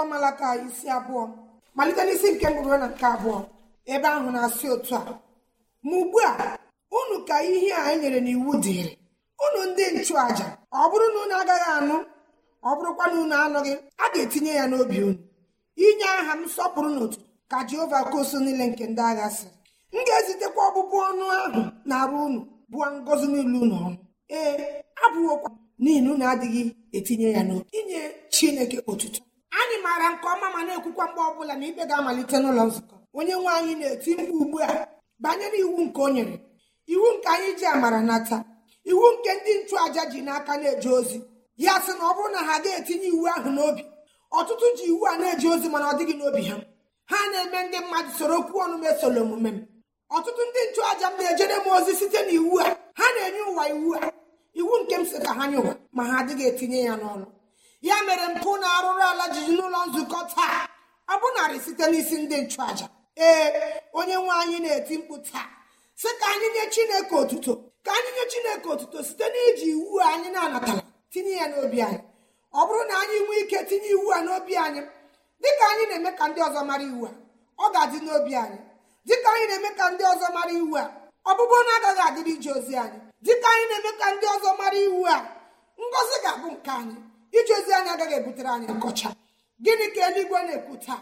akwụkwọ malaka isi abụọ malite n'isi nke mbụ ruo na nke abụọ ebe ahụ na-asị otu a ma ugbu a unu ka ihe a e nyere n'iwu dịrị unu ndị nchụàja ọ bụrụ na unu agaghị anụ ọ bụrụkwa na unu anọghị a ga-etinye ya n'obi unu inye aha m sọpụrụ n'otu ka jehova kosu niile nke ndị agha si m ga-ezitekwa ọbụbụ ọnụ ahụ na-arụ unu bụọ ngọzi niile ụnụ ọnụ ee abụghokwa n'ihi na unu adịghị etinye ya n'obi inye chineke otuto maara nke ọma ma na-ekwukwa mgbe ọbụla na ikpe ga-amalite n'ụlọ nzukọ onye nwe anyị na-eti mkpu ugbu a banyere iwu nke o nyere iwu nke anyị ji amara nata iwu nke ndị nchụaja ji n'aka na-eje ozi ya sị na ọ bụrụ na ha ga-etinye iwu ahụ n'obi ọtụtụ ji iwu a na-eje ozi mana ọ dịghị n'obi ha ha na-eme ndị mmadụ soro okwu ọnụ mesoro omume m ọtụtụ ndị nchụaja m na-ejere m ozi site na iwu a ha na-enye ụwa iwu a iwu nke m sị ka ha nye ụwa ma ha adịghị etinye ya n'ọnụ ya mere mpụ na-arụrụ ala jiji n'ụlọ nzukọ taa ọ narị site n'isi ndị nchụaja ee onye nwe anyị na-eti mkpu taa sị ka anyị nye chineke otuto ka anyị nye chineke otuto site n'iji iwu anyị na-anatara tinye ya n'obi anyị ọ bụrụ na anyị nwee ike tinye iwu a n'obi anyị dịka anyị na-eme ka ndị ọzọ mara iwu a ọ ga-adị n'obi anyị dịka anyị na-eme ka ndị ọzọ mara iwu a ọbụbụ na agaghị adịrị ije ozi anyị dịka anyị na-eme ka ndị ọzọ mara iwu a ngọzi ga-abụ nke anyị ije ozi anyị agaghị ebutere anyị nkọcha gịnị ka eluigwe na-ekwu taa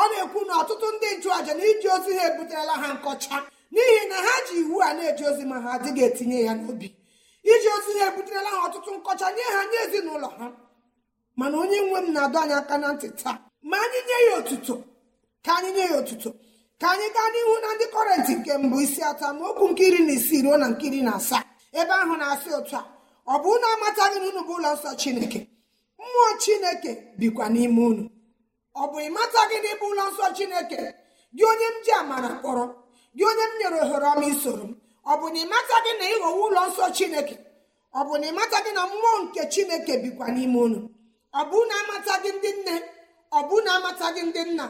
ọ na-ekwu na ọtụtụ ndị nchụàja na iji ozi ha ebuterela ha nkọcha n'ihi na ha ji iwu a na-eje ozi ma ha adịghị etinye ya n'obi iji ozi ha ebuterela ha ọtụtụ nkọcha nye ha nye ezinụlọ ha mana onye nwe m na-adọ anyị aka na ntị taa ma anyị nye ya otuto ka anyị nye ya otuto ka anyị gaa n'ihu na ndị kọrentị nke mbụ isi atọ ma okwu nke iri na isii ruo na nke iri na asaa ebe ahụ na-asị otu a ọ bụ na amataghị na unu bụ ụlọ nsọ chineke mmụọ chineke bikwa n'ime unu ọ bụ ịmata gị n'ịbụ ụlọ nsọ chineke gị onye m ji amara kpọrọ gị onye m nyere ohere ọma isoro m ọ bụ na ịmata gị na ịghọwa ụlọ nsọ chineke ọ bụ na ịmata gị na mmụọ nke chineke bikwa n'ime unu ọ bụ na amata gị ndị nne ọ bụ na amata gị ndị nna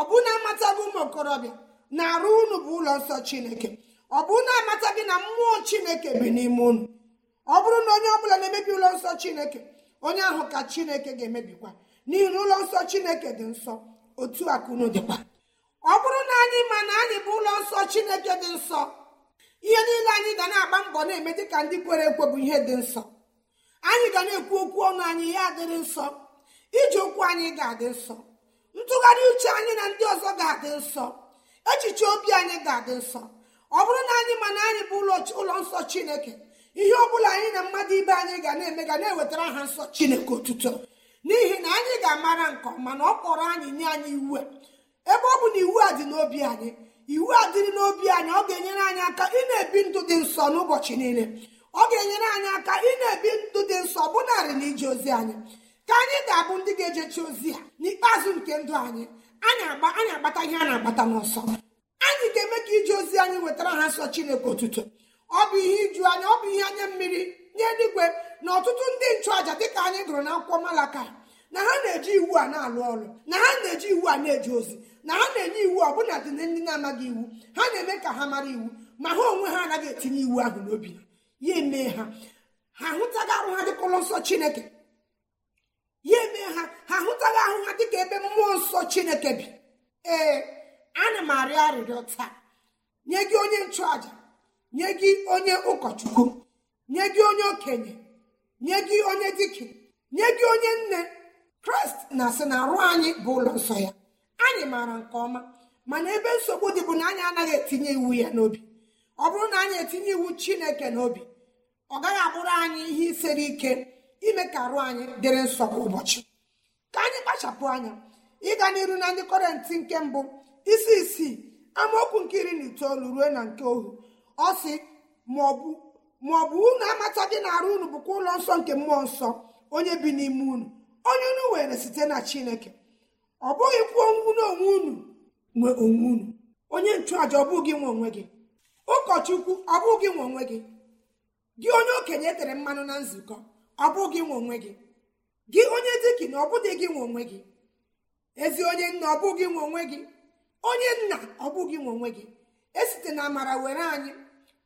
ọ bụ na amata gị ụmụ okorobịa na-arụ unu bụ ụlọ nsọ chineke ọ bụ na amata gị na mmụọ chineke bi n'ime unu ọ bụrụ na onye ọ bụla na-emebi ụlọ nsọ chineke onye ahụ ka chineke ga-emebikwa n'ihi ụlọ nsọ chineke dị nsọ otu akụnụ dịkwa ọ bụrụ na anyị ma na anyị bụ ụlọ nsọ chineke dị nsọ ihe niile anyị ga na-agba mbọ na-eme dị ka ndị kwere ekwe bụ ihe dị nsọ anyị ga na-ekwu okwu ọnụ anyị ya adịrị nsọ iji okwu anyị ga-adị nsọ ntụgharị uche anyị na ndị ọzọ ga-adị nsọ echiche obi anyị ga-adị nsọ ọ bụrụ na anyị ma na anyị bụ ụlọ nsọ chineke ihe ọ bụla anyị na mmadụ ibe anyị ga na-eme ga na-ewetara ha nsọ chineke otuto n'ihi na anyị ga-amara nke ọma na ọ kpọrọ anyị nye anyị iwu a ebe ọ bụ na iwu a dị n'obi anyị iwu a dịrị n'obi anyị ọ ga-enyere anyị aka ị na-ebi ndụ dị nsọ n'ụbọchị niile ọ ga-enyere anyị aka ị na-ebi ndụ dị nsọ narị na ije ozi anyị ka anyị ga-abụ ndị ga-ejechi ozi ya n'ikpeazụ nke ndụ anyị anyị agbata ihe a na-agbata n'ọsọ anyị ga-eme ka ije ozi anyị wetara ha nsọ chineke otuto ọ bụ ihe iju anya ọ bụ ihe anya mmiri nye eluigwe na ọtụtụ ndị nchụaja dịka anyị gụrụ na akwụkwọ malaka na ha na-eji iwu a na-alụ ọrụ na ha na-eji iwu a na-eji ozi na ha na-enye iwu bụla dị na ndị na-amaghị iwu ha na-eme ka ha mara iwu ma ha onwe ha anaghị etinye iwu ahụ n'obi ya eme ha ha ahụtaghị arụ ha dịka ụlọ nsọ chineke ya ha ha ahụ ha dịka ebe mmụọ nsọ chineke bi ee ana m arịọ arịrịọ taa nye gị onye nchụaja nye gị onye ụkọchukwu nye gị onye okenye nye gị onye dike nye gị onye nne kraịst na asị na arụ anyị bụ ụlọ nsọ ya anyị maara nke ọma mana ebe nsogbu dị bụ na anyị anaghị etinye iwu ya n'obi ọ bụrụ na anyị etinye iwu chineke n'obi ọ gaghị abụrụ anyị ihe isere ike ime ka arụ anyị dịrị nsọ kwa ụbọchị ka anyị kpachapụ anya ịga n'iru na ndị kọrentị nke mbụ isi isii amaokwu nke iri na itoolu ruo na nke ohu ọ sị maọbụ unu amata gị na-arụ unu bụkwa ụlọ nsọ nke mmụọ nsọ onye bi n'ime unu onye unu were site na chineke ọ bụghị kwuo unu onwe unu nwe onwe unu onye nchụàja ọ bụghị nwe onwe gị ụkọchukwu ọ bụghị nwe onwe gị gị onye okenye tere mmanụ na nzukọ ọ bụghị nwe onwe gị gị onye dikin ọ bụghị gị nwe onwe gị ezi onye nna ọ bụghị nwe onwe gị onye nna ọ bụghị nwe onwe gị esite na amara were anyị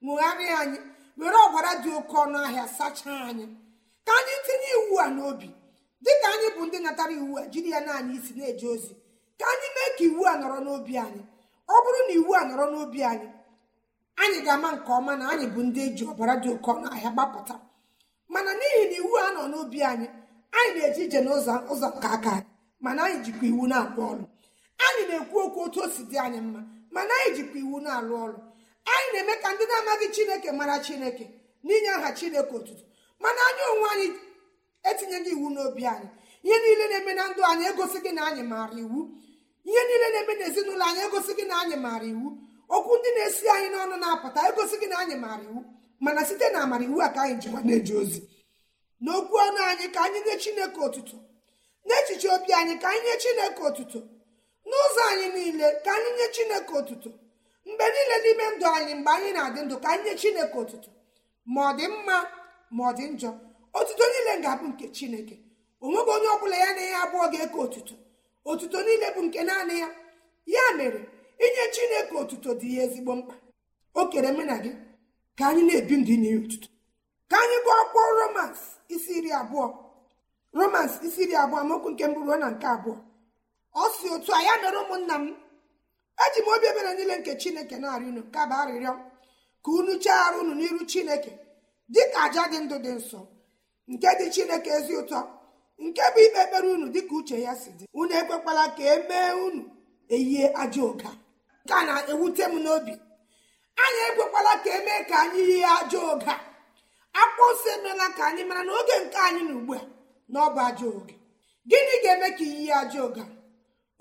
ṅụgharịa anyị were ọbara dị oke ọnụ ahịa sachaa anyị ka anyị tinye iwu a n'obi dịka anyị bụ ndị natara iwu a jiri ya naanị isi na-eje ozi ka anyị mee ka iwu a nọrọ n'obi anyị ọ bụrụ na iwu a nọrọ n'obi anyị anyị ga-ama nke ọma na anyị bụ ndị eji ọbara dị oke ọnụ ahịa gbapụta mana n'ihi na iwu a nọ n'obi anyị anyị na-eje ije n'ụzọ ụzọ nke aka anyị mana anyị jikwa iwu na-arụ ọrụ anyị na-ekwu okwu otu o si dị anyị mma mana anyị jikwa iwu na-alụ ọrụ anyị na-eme ka ndị na-amaghị chineke mara chineke n'inye aha chineke otutu mana anyị onwe anyị etinyeghị iwu n'obi anyị ihe niile na-eme na ndụ anyị egosighị na anyị maara iwu ihe niile na-eme na ezinụlọ anyị egosighị na anyị maara iwu okwu ndị na-esi anyị n'ọnụ na-apụta egosighị na anyị maara iwu mana site na amara iwu a ka anyị jiwa na-eje ozi n'okwu ọnụ anyị ka anyị nye chineke otutu n'echiche obi anyị ka anyị nye chineke otutu n'ụzọ anyị niile ka anyị nye chineke otutu mgbe niile n'ime ndụ anyị mgbe anyị na-adị ndụ ka anyị nye chineke otuto ma ọ dị mma ma ọ dị njọ otuto niile ga-abụ nke chineke onweghị onye ọbụla ya na ya abụọ ga-eke otuto otuto niile bụ nke naanị ya ya mere inye chineke otuto dị ya ezigbo mkpa o kere mụ na gị ka anyị na-ebi ndụ inye otuto ka anyị gụọ akwụkwọ romans isi iri abụọ romans isi iri abụọ amaokwu nke mbụ ruo na nke abụọ ọ si otu a ya mere ụmụnna m eji m obi ebere niile nke chineke na-arị unu kaba arịrịọ ka unu chee arụ unu n'iru chineke dịka aja dị ndụ dị nsọ nke dị chineke ezi ụtọ nke bụ ikpe ekpere unu dịka uche ya si dị unu ekwekwala ka e mee unu eyie ajọ ụga. nke a na-ewute m n'obi anyị ekwekwala ka emee ka anyị yie ajọ ụga akpụ nsọ emeela ka anyị mara n'oge nke anyị na ugbu a na ọ bụ ajọ oge gịnị ga-eme ka iyi ajọ ụga.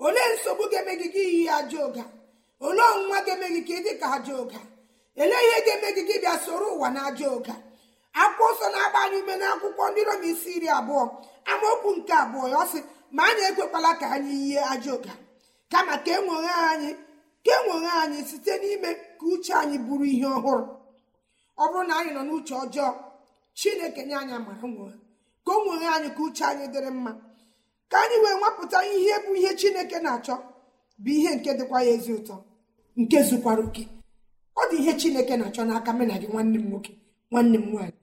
olee nsogbu ga-eme gị gị iyi aja ụga olee ọnwụnwa ga-eme gị ka ịdị ka aja ụga ihe ga-eme gị gị bịa soro ụwa na aja ụga akwụkwọ ọsọ na-agba anyị ume akwụkwọ ndị rom isi iri abụọ amaokwu nke abụọ ya ọ sị ma anyị ekwekwala ka anyị yie aja ụga kama ka enwere anyị ka enwere anyị site n'ime ka uche anyị bụrụ ihe ọhụrụ ọ bụrụ na anyị nọ n'uche ọjọọ chineke nye anyị amara nwere ka o nwere anyị ka uche anyị dịrị mma ka anyị wee nwapụta ihe bụ ihe chineke na-achọ bụ ihe nke dịkwa ya ezi ụtọ nke zukwara oke ọ dị ihe chineke na-achọ n'aka mena gị nwanne m nwoke nwanne m nwaanyị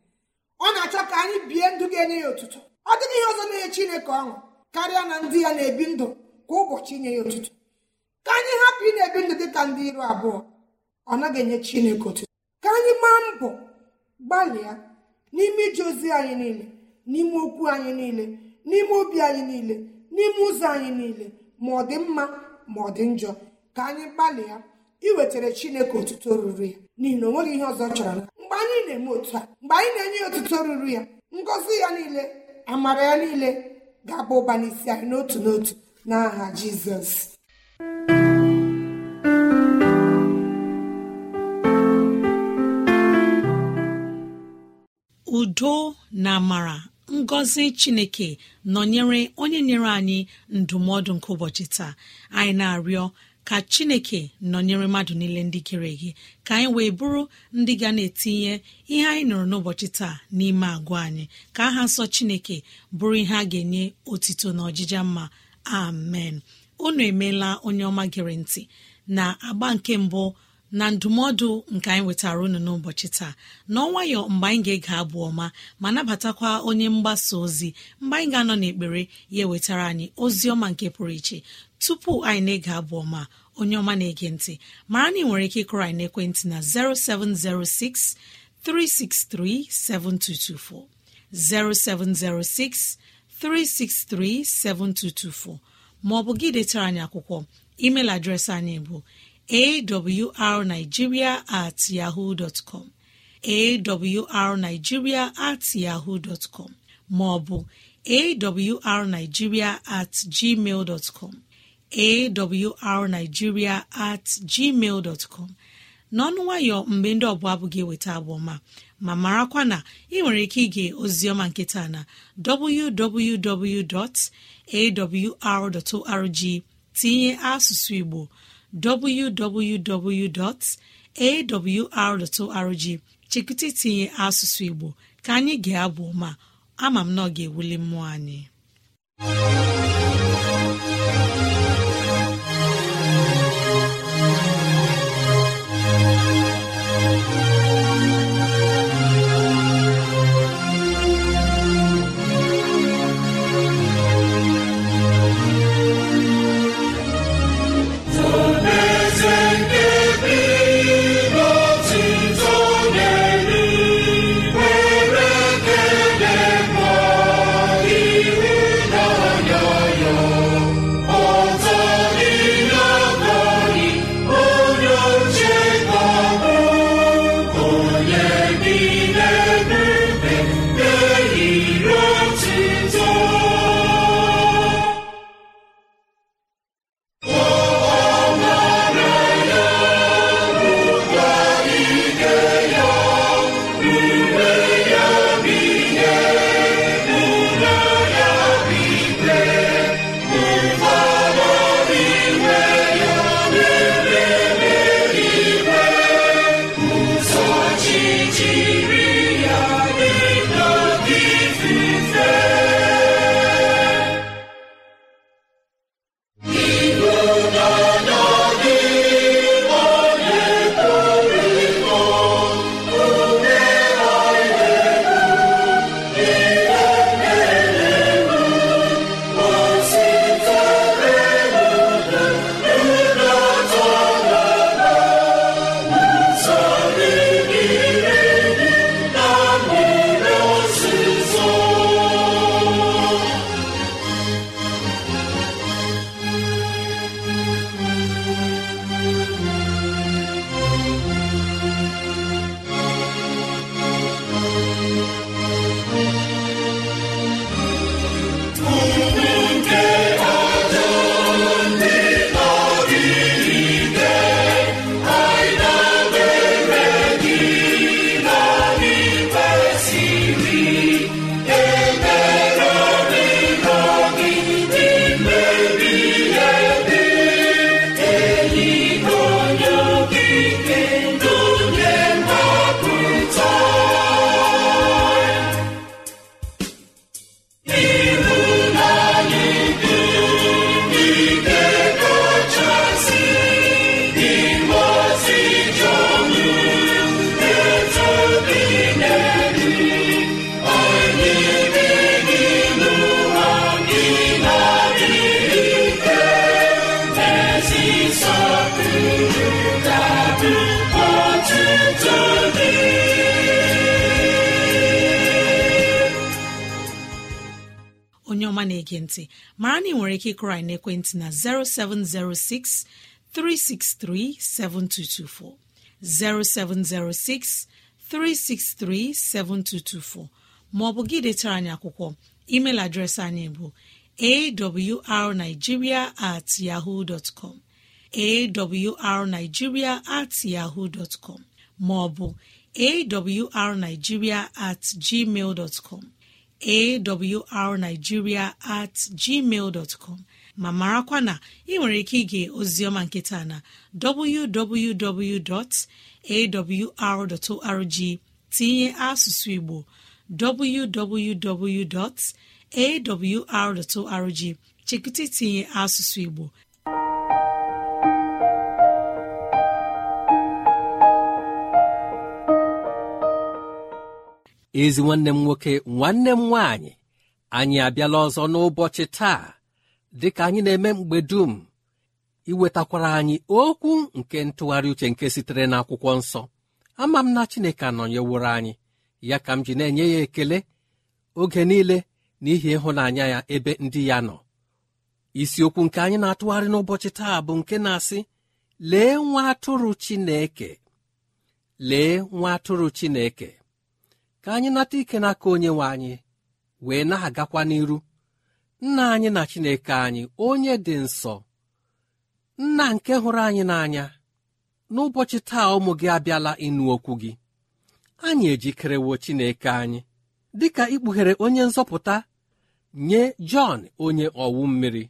ọ na-achọ ka anyị bie ndụ ga-enye ya ụtụtụ ọ dịghị ihe ọzọ na-enye chineke ọṅụ karịa na ndị ya na-ebi ndụ kwa ụbọchị inye ya ụtụtụ ka anyị hapụ ị na-ebi ndụ dị ka ndị iru abụọ ọ naghị enye chineke ụtụtụ ka anyị maa mbọ gbalịa n'ime ije ozi anyị niile n'ime okwu anyị niile n'ime obi anyị niile n'ime ụzọ anyị niile ma ọ dị mma ma ọ dị njọ ka anyị gbalịa iwetara chineke otuto ruru ya n'ihi na o ihe ọzọ chọrọ mgbe anyị na-eme otu a mgbe anyị na-enye ya otuto ruru ya ngọzi ya niile amara ya niile ga-aba ụba anyị n'otu n'otu n'aha jizọs udo na amara ngọzi chineke nọnyere onye nyere anyị ndụmọdụ nke ụbọchị taa anyị na-arịọ ka chineke nọnyere mmadụ niile ndị kere gị ka anyị wee bụrụ ndị ga na-etinye ihe anyị nụrụ n'ụbọchị taa n'ime agwa anyị ka aha nsọ chineke bụrụ ihe a ga-enye otito na ọjịja mma amen unu emeela onye ọma gere ntị na agba nke mbụ na ndụmọdụ nke anyị wetara unu n'ụbọchị taa n'ọnwayọ mgbe anyị ga-ege abụ ọma ma nabatakwa onye mgbasa ozi mgbe anyị ga-anọ n'ekpere ya ewetara anyị ozi ọma nke pụrụ iche tupu anyị na-ege abụ ọma onye ọma na-ege ntị mara na ị nwere ike ịkụrọ anyị n'ekwentị na 0706 363 7224 0706 363 7224 ma ọ bụ gị detara anyị akwụkwọ email adreesị anyị bụ awrnigeria at yahoo dọtcọm awrnigeria at yahoo dọtcọm maọbụ awrnigeria at gmail dọtcọm awrnigeria at gmail dọtcọm n'ọnụ nwayọ mgbe ndị ọbụla abụghị eweta abụọma ma marakwa na ị nwere ike ige ozioma nkịta na www.awr.org tinye asụsụ Igbo www.awr.org chekụta itinye asụsụ Igbo ka anyị ga-abụ ma ama m na ọ ga-ewuli mmụọ anyị Ma ege na ị nwere ike ịkụrọ anyị n'ekwentị na 0706 363 7224 0706 363 7224 Ma ọ bụ gị detara anyị akwụkwọ email adreesị anyị bụ awrnigeria at yahoo dot com awrnigeria at yahoo dot com maọbụ awrnigeria at gmail awrnigeria at gmail com. ma marakwa na ị nwere ike ige ozioma nketa na www.awr.org tinye asụsụ Igbo www.awr.org chekụta itinye asụsụ Igbo ezi nwanne m nwoke nwanne m nwaanyị anyị abịala ọzọ n'ụbọchị taa dị ka anyị na-eme mgbe dum iwetakwara anyị okwu nke ntụgharị uche nke sitere n'akwụkwọ nsọ ama m na Chineke anọnyeworo anyị ya ka m ji na-enye ya ekele oge niile n'ihi ịhụnanya ya ebe ndị ya nọ isiokwu nke anyị na-atụgharị n'ụbọchị taa bụ nke na-asị lee nwa atụrụ Chineke lee nwa atụrụ Chineke ka anyị nata ike n'aka onye nwe anyị wee na-agakwa n'iru nna anyị na chineke anyị onye dị nsọ nna nke hụrụ anyị n'anya n'ụbọchị taa ụmụ gị abịala ịnụ okwu gị anyị ejikerewo chineke anyị dịka ikpughere onye nzọpụta nye jọn onye ọwụ mmiri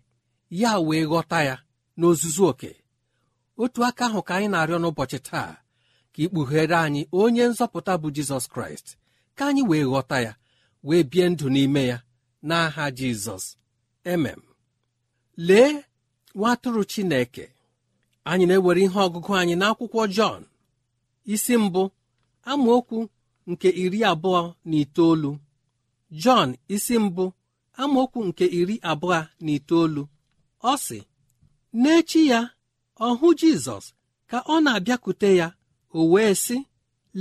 ya wee ghọta ya n'ozuzu oke otu aka ahụ ka anyị na-arịọ n'ụbọchị taa ka ikpughere anyị onye nzọpụta bụ jizọs kraịst ka anyị wee ghọta ya wee bie ndụ n'ime ya n'aha jizọs emem lee nwatụrụ chineke anyị na-ewere ihe ọgụgụ anyị n'akwụkwọ jọn isi mbụ amaokwu nke iri abụọ na itoolu jọn isi mbụ amaokwu nke iri abụọ na itoolu ọ sị n'echi ya ọ hụ jizọs ka ọ na-abịakwute ya o wee sị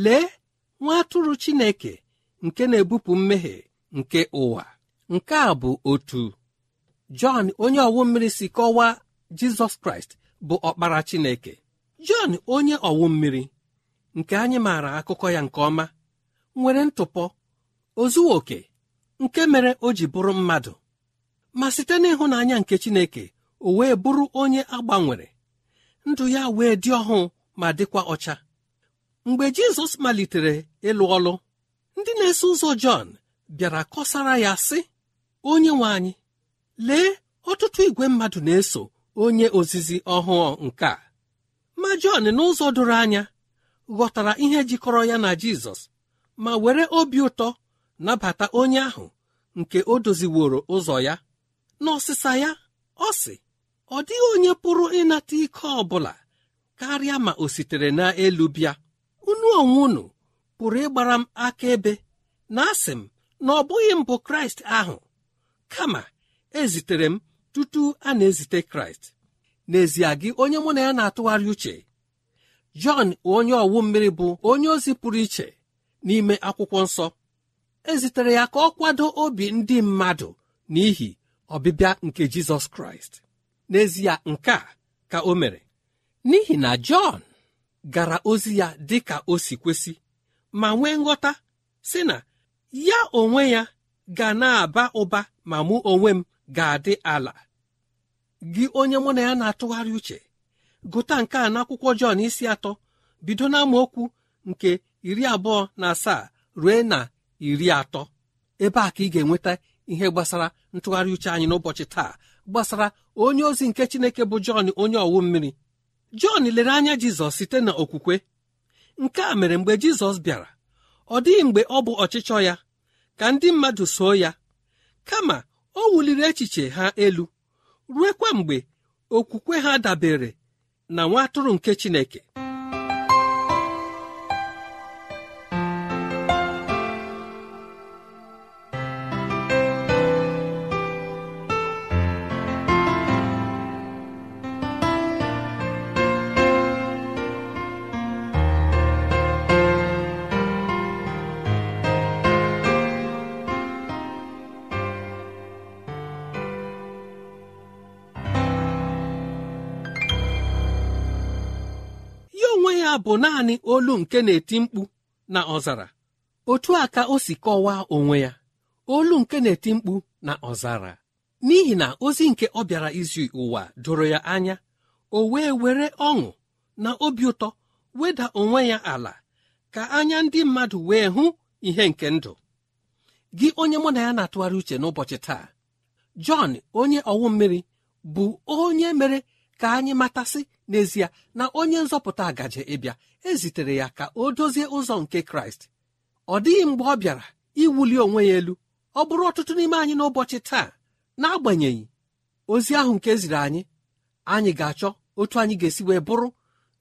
lee nwa atụrụ chineke nke na-ebupụ mmehie nke ụwa nke a bụ otu jọn onye ọwụ mmiri si kọwaa jizọs kraịst bụ ọkpara chineke jọn onye ọwụ mmiri nke anyị maara akụkọ ya nke ọma nwere ntụpọ ozuwa nke mere o ji bụrụ mmadụ ma site n'ịhụnanya nke chineke o wee bụrụ onye agbanwere ndụ ya wee dị ọhụụ ma dịkwa ọcha mgbe jizọs malitere ịlụ ọlụ ndị na-eso ụzọ Jọn bịara kọsara ya sị onye nwe anyị lee ọtụtụ igwe mmadụ na-eso onye ozizi ọhụụ nke a ma Jọn n'ụzọ doro anya ghọtara ihe jikọrọ ya na Jizọs ma were obi ụtọ nabata onye ahụ nke o doziworo ụzọ ya n'ọsịsa ya ọ sị ọ dịghị onye pụrụ ịnata ike ọ bụla karịa ma o sitere n'elu bịa unu onwe pụrụ ịgbara m aka ebe na asị m na ọ bụghị mbụ kraịst ahụ kama ezitere m tutu a na-ezite kraịst n'ezie gị onye mụ na ya na-atụgharị uche jọn onye ọwụ mmiri bụ onye ozi pụrụ iche n'ime akwụkwọ nsọ ezitere ya ka ọ kwado obi ndị mmadụ n'ihi ọbịbịa nke jizọs kraịst n'ezie nke a ka o mere n'ihi na jọn gara ozi ya dị ka o si kwesị ma nwee nghọta sị na ya onwe ya ga na-aba ụba ma mụ onwe m ga-adị ala gị onye mụ na ya na-atụgharị uche gụta nke a n'akwụkwọ Jọn isi atọ bido n'amaokwu nke iri abụọ na asaa rue na iri atọ ebe a ka ị ga-enweta ihe gbasara ntụgharị uche anyị n'ụbọchị taa gbasara onye ozi nke Chineke bụ Jọn onye ọwụ mmiri Jọn lere anya Jizọs site na nke a mere mgbe Jizọs bịara ọ dịghị mgbe ọ bụ ọchịchọ ya ka ndị mmadụ soo ya kama o wuliri echiche ha elu ruekwa mgbe okwukwe ha dabere na nwa atụrụ nke Chineke ya bụ naanị olu nke na-eti mkpu na ọzara otu a ka o si kọwaa onwe ya olu nke na-eti mkpu na ọzara n'ihi na ozi nke ọ bịara izi ụwa doro ya anya o wee were ọṅụ na obi ụtọ weda onwe ya ala ka anya ndị mmadụ wee hụ ihe nke ndụ gị onye mụ na ya na-atụgharị uche n'ụbọchị taa Jọn onye ọwụ mmiri bụ onye mere ka anyị matasị n'ezie na onye nzọpụta agaje ịbịa ezitere ya ka o dozie ụzọ nke kraịst ọ dịghị mgbe ọ bịara iwuli onwe ya elu ọ bụrụ ọtụtụ n'ime anyị n'ụbọchị taa n'agbanyeghị ozi ahụ nke e ziri anyị anyị ga-achọ otu anyị ga-esi wee bụrụ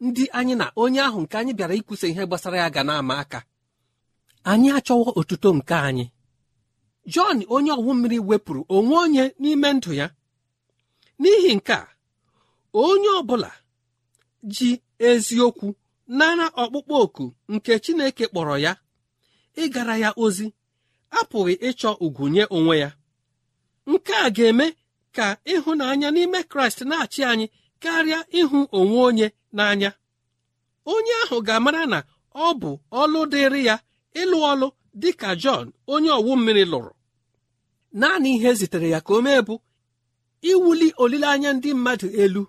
ndị anyị na onye ahụ nke anyị bịara ikwusa ihe gbasara ya ga na-ama aka anyị achọwo otuto nke anyị jọn onye ọwụ mmiri wepụrụ onwe onye n'ime ndụ ya n'ihi nke a onye ọ bụla ji eziokwu nara ọkpụkpọ oku nke Chineke kpọrọ ya ịgara ya ozi apụghị ịchọ ugwu nye onwe ya nke a ga-eme ka ịhụnanya n'ime Kraịst na-achị anyị karịa ịhụ onwe onye n'anya onye ahụ ga-amara na ọ bụ ọlụ dịrị ya ịlụ ọlụ dị ka Jọn onye ọwụ mmiri lụrụ naanị ihe zitere ya ka o mee bụ iwuli olileanya ndị mmadụ elu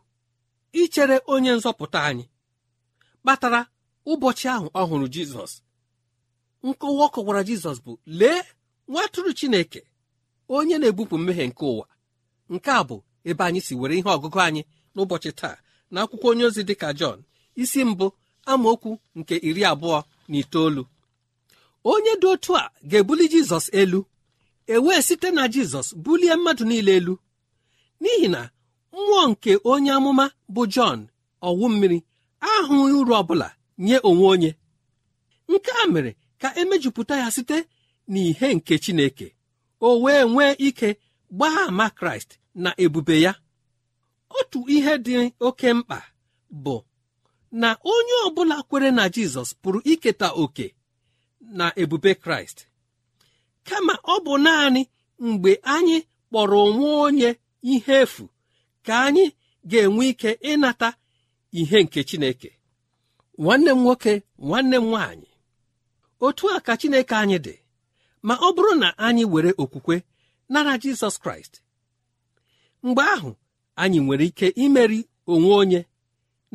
ichere onye nzọpụta anyị kpatara ụbọchị ahụ ọ hụrụ jizọs nkọwa ọ kọwara jizọs bụ lee nwatụrụ chineke onye na-ebupụ mmehie nke ụwa nke a bụ ebe anyị si were ihe ọgụgụ anyị n'ụbọchị taa na akwụkwọ onye ozi dị ka jọn isi mbụ amaokwu nke iri abụọ na itoolu onye dị otu a ga-ebuli jizọs elu e wee site na jizọs bulie mmadụ niile elu n'ihi na mmụọ nke onye amụma bụ Jọn ọwụ mmiri ahụghị uru ọbụla nye onwe onye nke a mere ka emejupụta ya site n'ihe nke Chineke o wee nwee ike gbaa ama Kraịst na ebube ya otu ihe dị oke mkpa bụ na onye ọbụla kwere na Jizọs pụrụ iketa oke na ebube Kraịst kama ọ bụ naanị mgbe anyị kpọrọ onwe onye ihe efu ka anyị ga-enwe ike ịnata ihe nke Chineke nwanne m nwoke nwanne m nwaanyị otu a ka Chineke anyị dị ma ọ bụrụ na anyị were okwukwe nara Jizọs Kraịst mgbe ahụ anyị nwere ike imeri onwe onye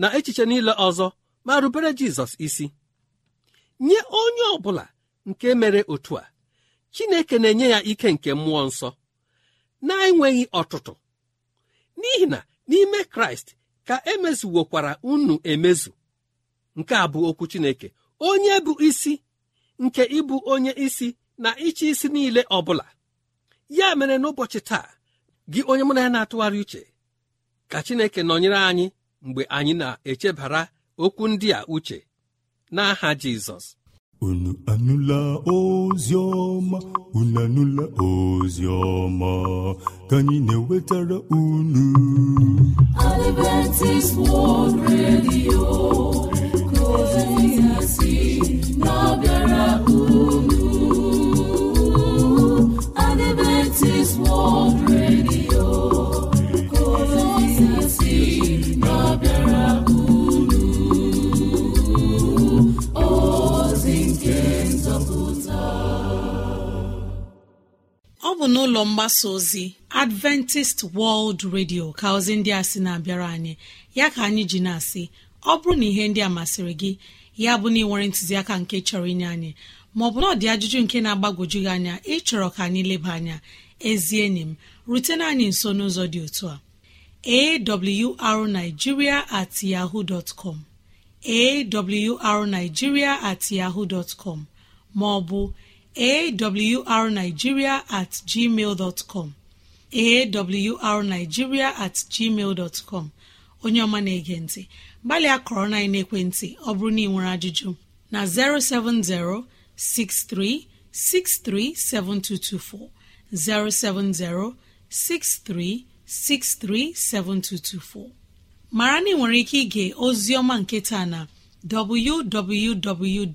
na echiche niile ọzọ ma rubere Jizọs isi nye onye ọ bụla nke mere otu a Chineke na-enye ya ike nke mmụọ nsọ na-enweghị ọtụtụ n'ihi na n'ime kraịst ka emezuwokwara unu emezu nke a bụ okwu chineke onye bụ isi nke ịbụ onye isi na ịchị isi niile ọ bụla ya mere n'ụbọchị taa gị onye mụ na ya na-atụgharị uche ka chineke nọnyere anyị mgbe anyị na-echebara okwu ndị a uche n'aha jizọs unu anụla ozi ọma unu anụla ozi ọma ka anyị na-ewetara unu Adventist World Radio mgbasa ozi adventist World Radio ka ozi ndị a sị na-abịara anyị ya ka anyị ji na-asị ọ bụrụ na ihe ndị a masịrị gị ya bụ na ịnwere ntụziaka nke chọrọ inye anyị maọbụ na ọ dị ajụjụ nke na-agbagwoju gị anya ịchọrọ ka anyị leba anya ezi enyi m rutena anyị nso n'ụzọ dị otu a arigiria at yahoo dot com at dotcom maọbụ awrnigeria at com at com onye ọma na-ege ntị gbalịa kọrọ na ekwentị ọ bụrụ na ị nwere ajụjụ na 07063637224 7224. mara na ị nwere ike ige ozi ọma nke taa na www.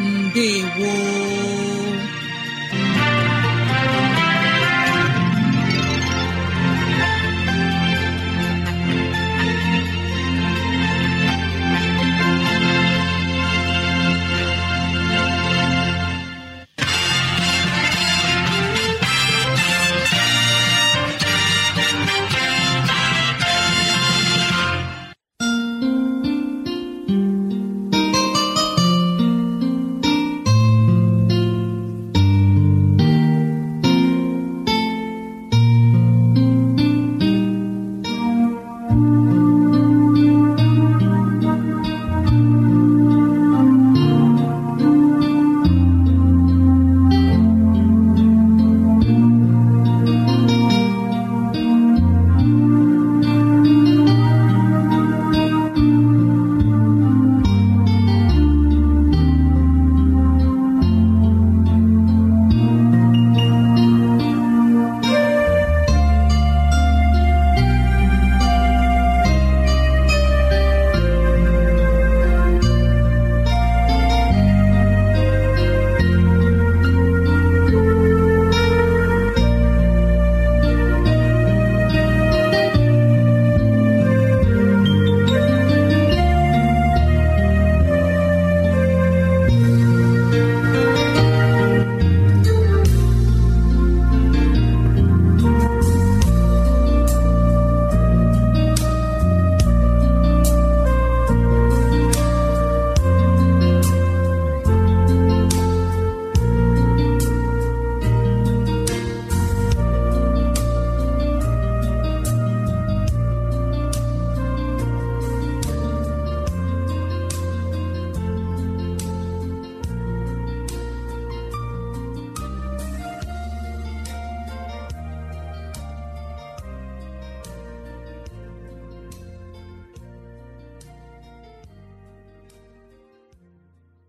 ndewo